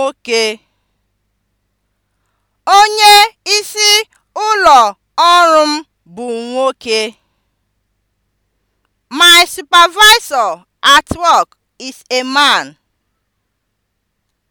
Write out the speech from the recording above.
nwoke. Onye isi ụlọ ọrụ m bụ nwoke. My supervisor at work is a man.